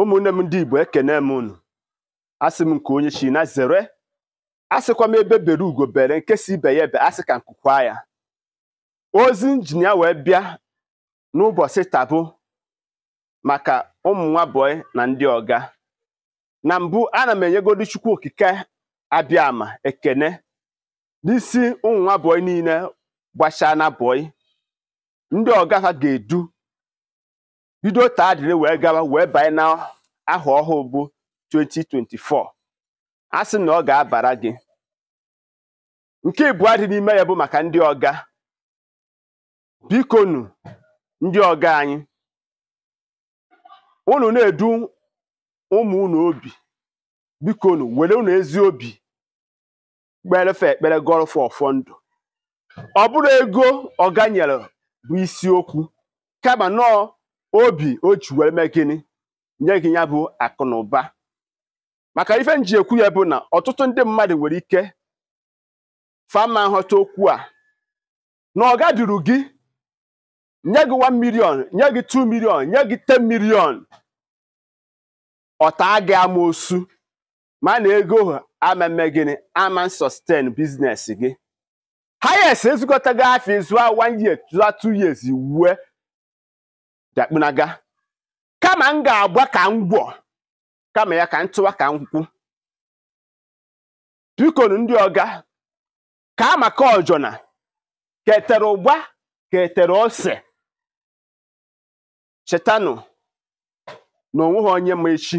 ụmụnne m ndị igbo ekene m unu asị m nke onye china na zere asịkwa m ebe bere ugo bere nke ibe ya ebe asị ka nkụkwa ya ozi injinia wee bịa n'ụbọchị Tabu maka ụmụ nwa na ndị ọga na mbụ ana m enyegodi chukwu okike abịama ekene n'isi ụmụ niile gbachaa na ndị ọga ha ga-edu bido taa dịrị wee gawa wee banye na aha ọhụụ bụ 2024 a sị na ọ ga-abara gị nke ịbụọ dị n'ime ya bụ maka ndị ọga bikonu ndị ọga anyị unu na-edu ụmụ unu obi bikonu were unu ezi obi kperefe ekpere gọrọfụ ọfọ ndụ ọ bụrụ ego ọga nyere bụ isiokwu kama nọọ obi o ji wee mee gịnị nye gị ya bụ akụnụba maka ife nji ekwu ya bụ na ọtụtụ ndị mmadụ nwere ike fama nghọta okwu a na ọ gaduru gị nye gị 1 million nye gị 2 million nye gị 10 million ọta gị osu ma na ego ameme gịnị ama sustain business gị ha yes ezukọtago afọ a 1 year 2 years wue dakpunaga kama m ga-agba ka m gwọ kama ya ka m tụwa ka m kwu bikonu ndị ọga ka amaka ọjọna ketere ụgba ketere ose chetanụ na onweghị onye ma echi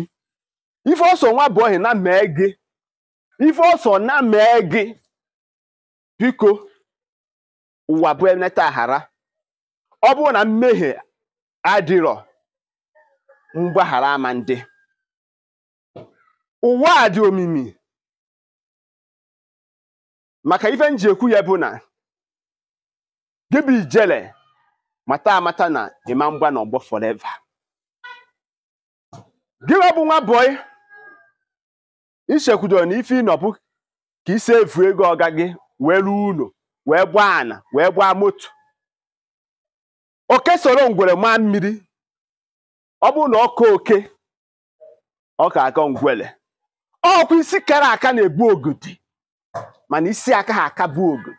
ife ọsọ nwa bụ ohi na mee gị ife ọsọ na mee gị biko ụwa bụ eneta ọ bụrụ na mmehie adịrọ mgbaghara ama ndị ụwa a dị omimi maka ife m ji ekwu ya bụ na gị ijele mata amata na ịma mgba na ọgbọ forever gị bụ nwa bọị ichekwudo na ife ịnọbụ ka isi evu ego ọga gị wee ruo ụlọ wee gbaa ana wee gbaa moto oke soro ngwere maa mmiri ọ bụrụ na ọka oke ọ ka ngwele ngwere ọkwa isi kara aka na egbu ogidi mana isi aka ha aka bụ ogidi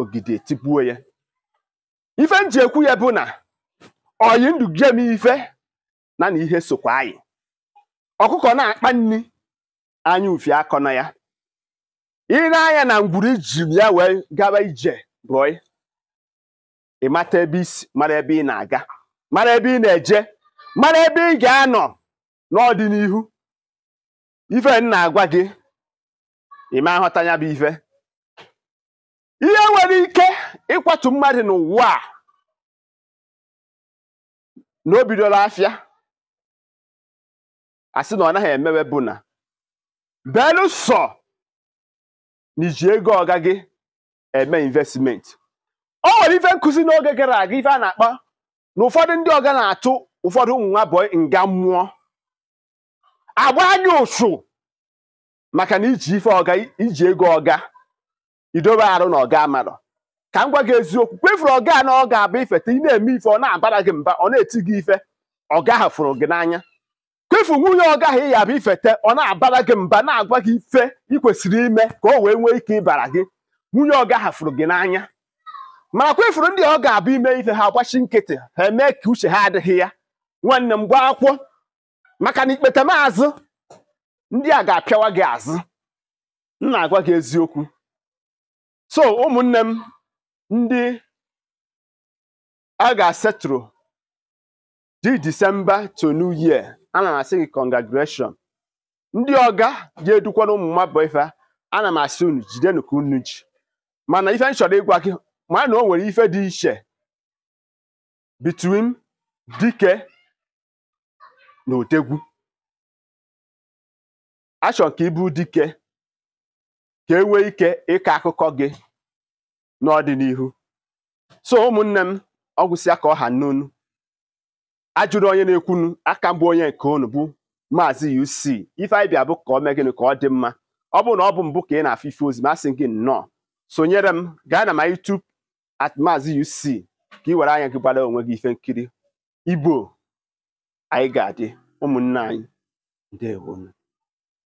ogidi etibuo ya ife m ji ekwu ya bụ na oyi ndụ jem ife na na ihe sokwa anyị ọkụkọ na-akpa nri anya ufi akọ na ya ire anya na ngwuru iji ya wee gaba ije rụọ ị mata ebe isi mara ebe ị na-aga mara ebe ị na-eje mara ebe ị ga-anọ n'ọdịnihu ife m na-agwa gị ịma nghọta ya bụ ife ihe nwere ike ịkwatu mmadụ n'ụwa a na o bidola afịa asị na ọ naghị emewe bụ na belụsọ na iji ego ọga gị eme investimenti. o nwere ife nkụzi n'oge gara aga ife a na-akpa na ụfọdụ ndị ọga na-atụ ụfọdụ ụmụ nwa abụọ nga mmụọ agba gị ụsụ maka na iji ife ọga iji ego ọga idobe arụ na ọga amarọ ka m gwa gị eziokwu kwefuru ọga na ọ ga-abụ ifeta ị na-eme ife ọ na-abara gị mba ọ na-eti gị ife ọga ahụ fụrụ gị n'anya kwefu nwunye ọga ahụ ị yabụ ifete ọ na-abara gị mba na-agwa gị ife ị kwesịrị ime ka o wee nwee ike ịbara gị nwunye ọga ahụ fụrụ gị n'anya marakwa ifuru ndị ọ ga-abụ ime ife ha agbachi nkịtị ha emee ka uche ha adịghị ya nwanne m gwa akwụkwọ maka na ikpete maazụ ndị a ga-apịawa gị azụ m na-agwa gị eziokwu so ụmụnne m ndị a ga-asetụrụ di disemba to new year ana m asị gị congratulation ndị ọga ga-edukwana ụmụ mmadụ ife ana m asị unu jide ka unu ji mana ife m chọrọ ịgwa gị ma na o nwere ife dị iche between dike na otegwu achọ ka ịbụ dike ka e nwee ike ịkọ akụkọ gị n'ọdịnihu so ụmụnne m ọgwụsịa ka ọha n'onu ajụrụ onye na-ekwunu aka mbụ onye nke unu bụ maazị UC ife anyị bịa bụ ka ọ mee gịnị ka ọ dị mma ọ bụrụ na ọ bụ mbụ ka ị na-afụ ife ozi masị gị nnọọ sonyere m gaa na my YouTube maazị UC ka ị were anya gị gbara onwe gị ife nkiri igbo anyị ga-adị ụmụnne anyị ndewonu